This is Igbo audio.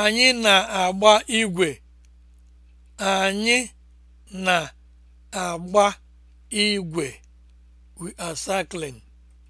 Anyị na-agba igwe. Anyị na We are cycling.